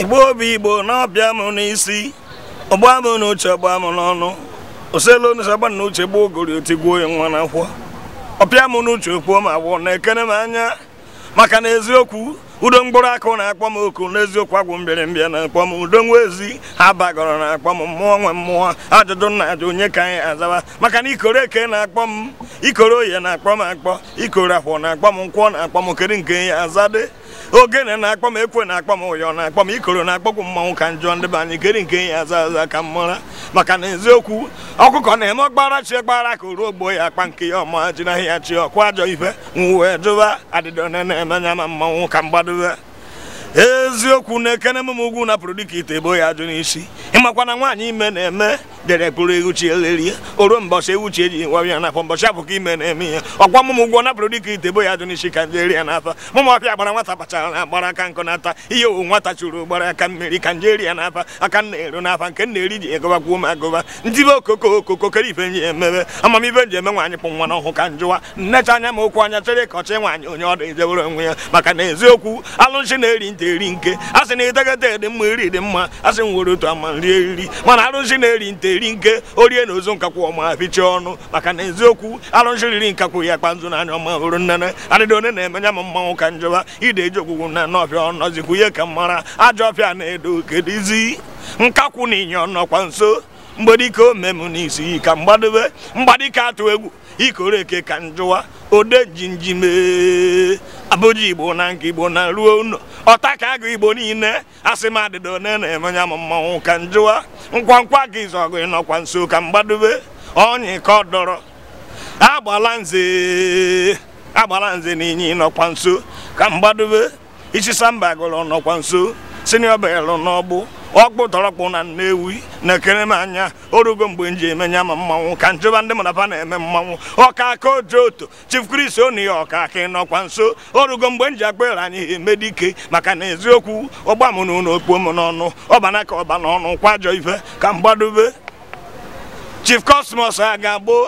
igbo obi igbo n'ọbịa m n'isi ọgba m n'uche ọgba m n'ọnụ oselu n'uche agba n'uche gboo ogori otigbuo ya nwa n'akwụkwọ ọpịa m n'uche okpuo m agwọ na-ekene m anya maka na eziokwu udo mkpụrụ akụ na-akpọ m oku n'eziokwu agwụ mbịa na-akpọ m udo nwa ezi ha bagọrọ na-akpọ m mmụọ nwe mmụọ ajụjụ nna ajụ onye ka anyị azaba maka na ikoro eke na-akpọ m ikoro oye na-akpọ m akpọ ikoro akwụ na-akpọ m nkwọ na-akpọ m kere nke ya azade ogene na-akpọ m ekwe na-akpọ m ụyọ na-akpọ m ikoro na-akpọkwu mmanwụ ka njọ ndị be anyị nke ya aza aza ka m mara maka na eziokwu ọkụkọ na-eme ọgbara chi gbara ka oruo ogbo ya akpa nke ya ọma ji ahịa chi ọkụ ajọ ife wee jụba adịdọ na-emenya ma mmanwụ ka m gbadowe eziokwu na-ekene na m ugwu napụrụ dịka ite ebo ya ajụ n'isi ịmakwa na nwaanyị ime na-eme dere pụrụ ewuchi o ruo mbọsị ewuchi eji nwa ya n'afọ mbọsị abụ ka ime na-eme ihe ọkwa mụmụ ụgwọ napụrụ dịka ite bo ya dụ n'isi ka nje eri ya n'afa mụmụ ọpịa gbara nwata kpachara na agbara aka nkụ nata ihe owu nwata chụrụ ụgbara aka mmiri ka nje eri ya n'afa aka nna eru n'afa nke nna eri ji egọbakwuo m agụba ntibe okoko okoko kere ife nji emebe amamibe nji eme nwaanyị kpụ nwa n'ọhụ ka njụwa nnecha anya ma okwu anya chere ka ọchị nwaanyị onye ọ dị ejewere onwe ya maka na eziokwu alụnchi na-eri ntị eri nke a sị na idegede dị mma iri dị mma a sị m nwere otu ama nri eriri mana alụnchi na-eri ntị na-eri nke orie na ozu nkakwụ ọma pichie ọnụ maka na eziokwu arụjiriri nkakwụ ya kpa na anya ọma hụrụ nnene adịdị one na-emenya m mmanwụ ka njọba ide eji okwugwu na n'ọfịa ọnọzikwu ihe ka mara ajọ ọfịa na-edo kedizi nkakwụ na inye ọnọkwa nso mgbedike dike omem n'isi ka mgbadebe mgbadike atụ egwu ikoro eke ka njụwa ode njinjime abụji igbo na nke igbo na ruo ụlọ ọta ka agụ igbo niile asị m adịdo ne na-eme ya m mmanwụ ka njụwa nkwankwa nkwa gị zọgụ ịnọkwa nso ka mgbadobe ọnyị ka ọ dọrọ agbala nze agbala nze na ịnọkwa nso ka mgbadobe ichisa mba gụrụ nọkwa nso sinio belụ n'ọgbụ ọkpụ tọrọkpụ na nnewi na-ekere m anya orugo mgbe m ji ma mmanwụ ka njeba ndị mụnaba na-eme mmanwụ ọka aka oji oto chief kris oni ya ọka aka ịnọkwa nso orugo mgbe m ji akpere anyị emedike maka na eziokwu ọgba m na ụlọ okpuo m n'ọnụ ọbana ka ọba n'ọnụ kwajọ ife ka m gbadobe chief kosmos a ga-agbo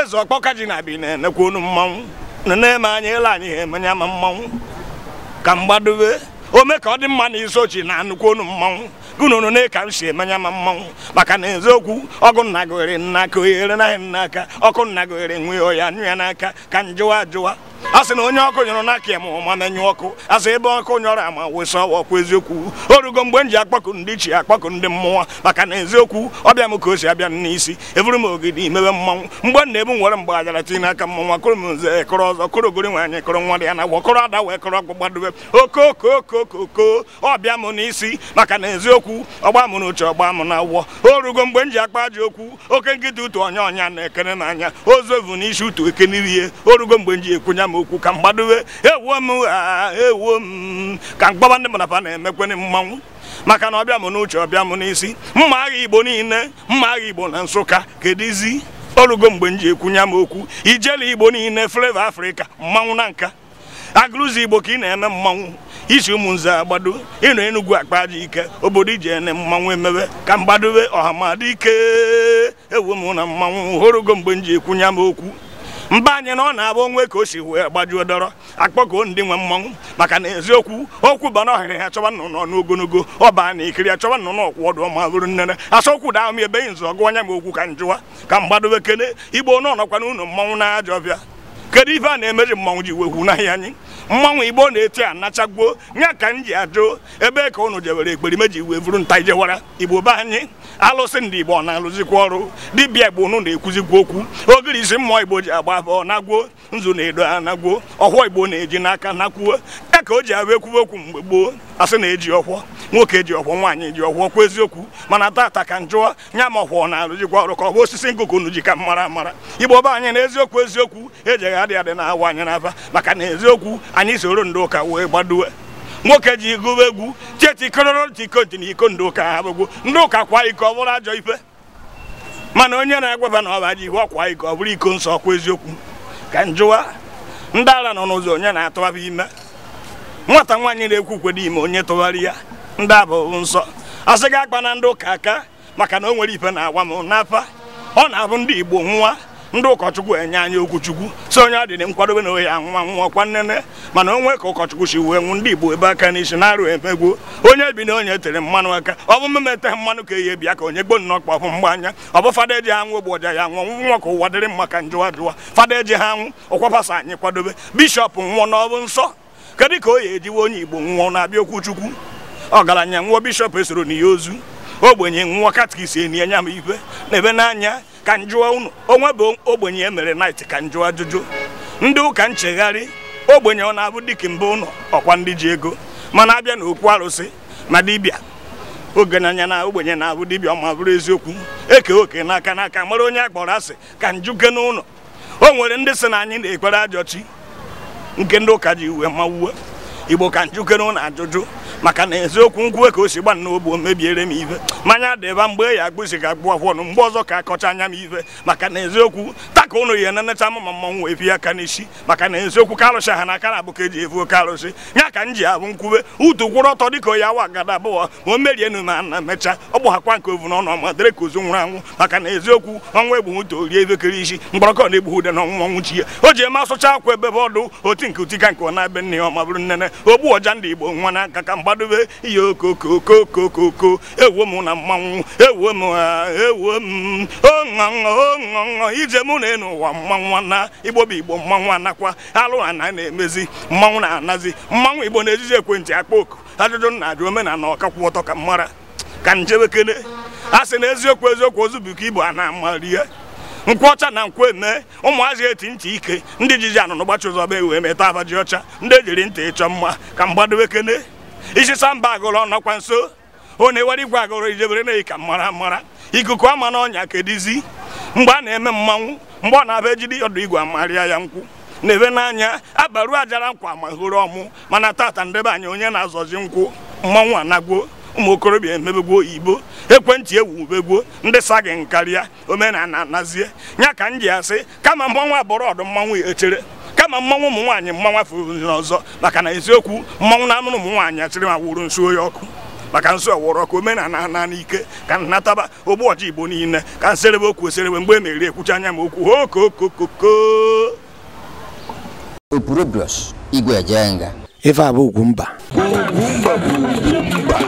eze ọkpọka ji na abi na-enekwa mmanwụ na-eme anya ele anyị ha emenya ma mmanwụ ka m gbadobe ome ka ọ dị mma na isochi na nnukwu onu mmanwụ gụnụnụ ne ka m si emenya ma mmanwụ maka na eziokwu ọgụ nna nna aka oghere naghị nna aka ọkụ nna gohere nwee ọya ya n'aka ka m jụwa ajụwa asị na onye ọkụ nyụrụ n'aka m ma menyụ ọkụ asị ebe ọkụ nyọrọ ama wesa ọkụ eziokwu orugo mgbe m ji akpakụ ndị chi akpakụ ndị mmụọ maka na eziokwu ọbịa m ka o si abịa n'isi eburu m ogidi mewe mmanwụ mgbe m ebu nwere mgbe ajara tinye n'aka mmọnwa kụrụ m nze kụrụ ọzọ kụrụ ogori nwaanyị kụrụ nwa dị ya na agwọ kụrụ ada wee kụrụ ọkpụ gbadobe okokookokoko ọbịa m n'isi maka na eziokwu ọgba m n'uche ọgba m na awọ orugo mgbe m ji akpa ji okwu oke nkịta utu ọnya ọnya na ekene n'anya ozu evu n'isi utu ekenirie o rugo mgbe m ji ekwunya m okwu ka mgbadowe ewuo m ha ewuo m ka mgbaba ndị mmadụ na-emekwenị mmanwụ maka na ọbịa m n'uche ọbịa m n'isi mma agha igbo niile mma agha igbo na nsụka kedizi orugo mgbe m ji ekwunye m okwu ijele igbo niile fleva afrịka mmanwụ na nka agụrụzi igbo ka ị na-eme mmanwụ isi ụmụnze agbado ịnọ enugwu akpa aja ike obodo iji ene mmanwụ emewe ka mgbadowe ọha madike ewu m na mmanwụ hụrụgo mgbe m ji ekwunye m okwu mba anyị na ọ na-abụ onwe ka o si wee gbajuo dọrọ akpọkoo ndị nwe mmanwụ maka na eziokwu okwu bana ọhịrị ha chọba nnụnụ ọnụ ogologo ọba na ikiri ya chọba nnụnụ ọkwụ ọdụ ọma bụrụ nnene asọkwu da ahụ ebeghị nzọ gụ anya m okwu ka m jụwa ka m gbadobe kele igbo n'ọnọkwa n'ụlọ mmanwụ na ajọ ọbịa kedu ife a na-emeji mmanwụ ji wekwu n'ahịa anyị mmanwụ igbo na-eti anachagbuo nya ka m ji ajụ ebe ka ụnụ jewere ekperime ji wee vuru nta ijewara igbo be anyị alụsị ndị igbo na-alụzikwa ọrụ dibịa igbo ụnụ na-ekwuzikwa okwu ogiri isi mmụọ igbo ji agba abụọ nagbuo nzu na-edo anagbuo ọhụọ igbo na-eji n'aka nakwuo ya e ka o ji abụ ekwuwe okwu mgbe gboo asị na-eji ọhụọ nwoke ji ọkwọ nwaanyị ji ọkwọ kwa eziokwu mana tata ka njụọ nya ma ọkwọ na alụ jikwa ọrụ ka ọ bụ osisi ngụkụ nu ji ka mara amara igbo ọba anyị na eziokwu eziokwu ejegha adị adị na-awa anyị n'afa maka na eziokwu anyị soro ndị ụka wee gbadowe nwoke ji gụwa egwu chetikororotikoji na iko ndị ụka ha bụgwu ndị ụka kwa iko ọ bụrụ ajọ ife mana onye na-agwaba na ọba ji ihu iko ọ bụrụ iko nsọ ọkwa eziokwu ka njụwa ndị ara nọ n'ụzọ onye na-atụgharị ime nwata nwaanyị na-ekwu kwedo ime onye tụgharị ya ndị a bụ nsọ asị gị akpa na ndị ụka aka maka na o nwere ife na-agwa m n'apa ọ na-abụ ndị igbo nwa ndị ụkọchukwu enye anyị okwuchukwu si onye ọ nkwadobe na ohi anwa nwa ọkwa nnene mana onwe ka ụkọchukwu si wee nwụ ndị igbo ebe aka n'isi na-arụ emegbuo onye bi na onye tere mmanụ aka ọ bụ mmemme mmanụ ka eyi bịa ka onye gboo nnọọ kpọpụ mgba anya ọ bụ fada eji ha nwụ ogboja ya nwụọ nwa ka ụwa dịrị mma ka njụwa jụwa fada eji ha nwụ ọkwapasa anyị kwadobe bishọp nwụọ na ọ bụ nsọ kedụ ka o yi ejiwe onye igbo nwụọ na-abịa okwuchukwu ọgaranya nwụọ bishọp esoro na ya ozu ogbenye nwụọ katkis enye m na ebe n'anya ka m jụọ unu onwe bụ ogbenye e mere nait ka m jụọ ajụjụ ndị ụka nchegharị ogbenye ọ na-abụ dịka mbụ ụlọ ọkwa ndị ji ego mana abịa na okwu arụsị na dibịa ogenanya na ogbenye na-abụ dibịa ọma bụrụ eziokwu eke oke n'aka n'aka mara onye akpọrọ asị ka njuke n'ụlọ o nwere ndị sị na anyị na-ekwere ajọchi nke ndị ụka ji uwe mawuwe igbo ka njukere na ajụjụ maka na eziokwu nkwuwe ka o si gba nna n'ogbo mebiere m ife mmanya dịba mgbe ya agbụzi ga agbụ akwọnụ mgbe ọzọ ka akọcha anya m ive maka na eziokwu taka ụnụ ya na-enecha mma mmọnwụ wee pie aka n'isi maka na eziokwu ka e arụsị ha na aka na abụka ka eji evu oke arụsị ya ka m ji abụ nkwube utu kwụrụ ọtọ dịka onye awa gada abụọ ma o merie nu ma na mechaa ọ gbụghakwa nke ovu n'ọnụ ma dịrị ka ozu nwụrụ anwụ maka na eziokwu ọnwa egbu nto rie evekere isi mgbọrọkọ na-egbu ude na ọnwụnwụ chi ya o ji eme asụcha akwa ebe ọdụ oti nke utika nke ọ na-ebe nne ya ọma bụrụ nnene ogbu ọja ndị igbo nwa n'aka ka gbadobe ihe okokokokokoko ewo m na mmanwụ ewuo m ewuo m oṅụṅụ ije mụ na enu ụwa mmanwụ na igbo bụ igbo mmanwụ anakwa alụ ana na-emezi mmanwụ na-anazi mmanwụ igbo na-ejiji ekwentị akpa oku ajụjụ na ajụ omenala ọkakwụ ọtọ ka mmara ka njebekele a sị na eziokwu eziokwu ozu bụ ka igbo a na-amali ya nkwụ ọcha na nkwụ eme ụmụazị eti ntị ike ndị jizi anụnụ gbachi ụzọ bụ wee meta abaji ji ọcha ndị ejiri ntị ịchọ mma ka mgbadowe kene isi samba agụrụ ọnọkwa nso ọ na igwe agụrụ ijebere na ka mara mara ikuku ama na ọnya kedizi mgbe a na-eme mmanwụ mgbe ọ na abịa ejidi ọdụ igwe amarịa ya nkwụ na-ebe n'anya abaru ajara nkwa ma hụrụ ọmụ mana tata ndebe anya onye na-azọzi nkwụ mmanwụ anagwuo ụmụ okorobịa emebegbuo igbo ekwentị ewubegbuo ndị sagị nkarịa omenana nazie ya ka m ji asị kama mmanwụ abụrụ ọdụ mmanwụ echere kama mmanwụ ụmụ nwaanyị mmanwa afọ ọzọ maka na eziokwu mmanwụ na amụrụ ụmụ nwaanyị achịrị ma wụrụ nsu oyi ọkụ maka nsọ wụrụ ọkụ omenala na n'ike ka nataba ogbuọcha igbo niile ka nserebe okwu oserebe mgbe e meriri ekwucha anya ma okwu okokokoko opurobios igwe ejenga ife abụ